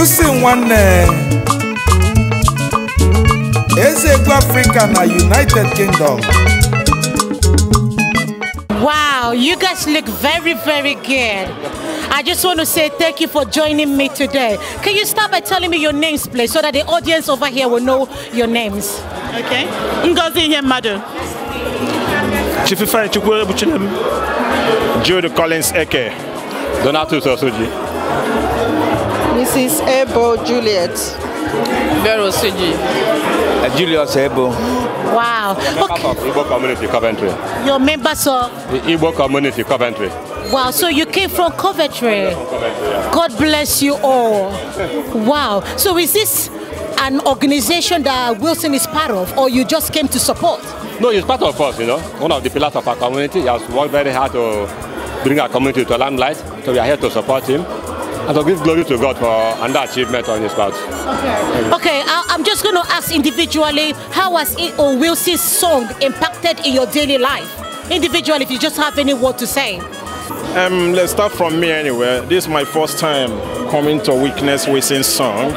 You yusi nwanne eh, eze egwu afrịka the united kingdom Wow, you guys look very, very good. I just want to say thank you for joining me today. Can you start by telling me your names, please, so that the audience over here will know your names? Okay. Ngozi Nyemadu. Chififai Chukwuebuchinem. Jude Collins Eke. Donatus Osuji. Mrs. Ebo Juliet. Vero Siji. Uh, eh, Julius Ebo. Wow. You're okay. of Igbo community, Coventry. You're members of? Igbo community, Coventry. Wow, so you came from Coventry. God bless you all. wow. So is this an organization that Wilson is part of, or you just came to support? No, he's part of us, you know. One of the pillars of our community. He has worked very hard to bring our community to a limelight. So we are here to support him. And so give glory to God for and that achievement on his part. Okay. Okay, I, I'm just going to ask individually, how has E.O. Wilson's song impacted in your daily life? Individually, if you just have any word to say. Um, let's start from me anyway. This is my first time coming to witness Wilson's song.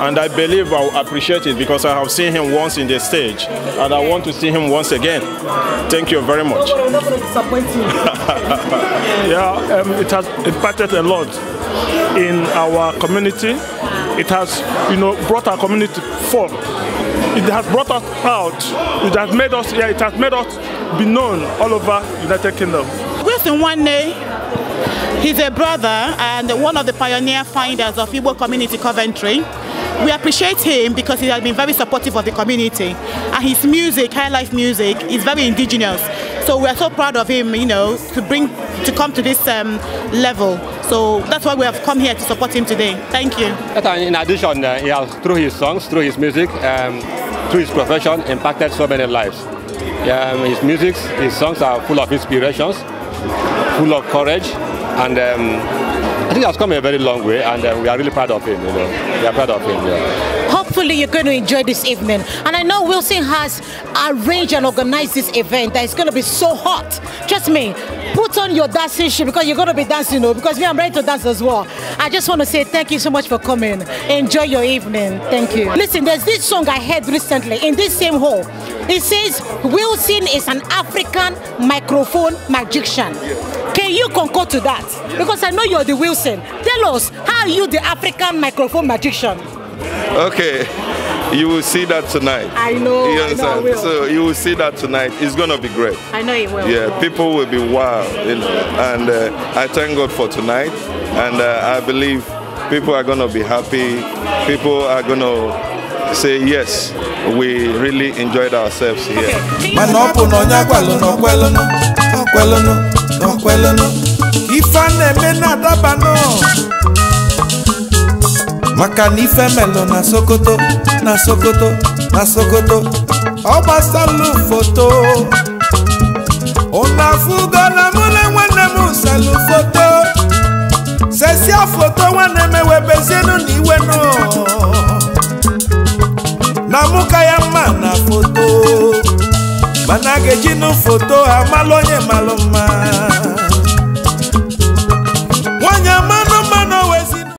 and I believe I will appreciate it because I have seen him once in the stage and I want to see him once again. Thank you very much. yeah, um, it has impacted a lot in our community. It has, you know, brought our community forth. It has brought us out. It has made us, yeah, it has made us be known all over United Kingdom. Wilson one day He's a brother and one of the pioneer finders of Igbo Community Coventry. We appreciate him because he has been very supportive of the community. And his music, high life music, is very indigenous. So we are so proud of him, you know, to bring, to come to this um, level. So that's why we have come here to support him today. Thank you. Uh, in addition, uh, he has, through his songs, through his music, um, through his profession, impacted so many lives. Um, his music, his songs are full of inspirations, full of courage, and um, I think has come a very long way, and uh, we are really proud of him. You know, we are proud of him. Yeah. Hopefully, you're going to enjoy this evening, and I know Wilson has arranged and organized this event that is going to be so hot. Trust me, put on your dancing shoe because you're going to be dancing, you oh, know, because me, I'm ready to dance as well. I just want to say thank you so much for coming. Enjoy your evening. Thank you. Listen, there's this song I heard recently in this same hall. It says, Wilson is an African microphone magician. Can you concur to that? Because I know you're the Wilson. Tell us, how are you the African microphone magician? Okay, you will see that tonight. I know. You understand? Know so you will see that tonight. It's gonna be great. I know it will. Yeah, people will be wild, you know. And uh, I thank God for tonight, and uh, I believe people are gonna be happy. People are gonna say yes, we really enjoyed ourselves here. Okay. kwelụnụ ife na-eme na maka na ife na sokoto na sokoto na sokoto ọ gbasalụ foto ụnụ afụgo na mụ na nwanne m salụ foto sesia foto nwanne m ewebezienụ na iwenụ na mụ ka ya mma na foto mana a ga-ejinụ foto amalụ onye malụ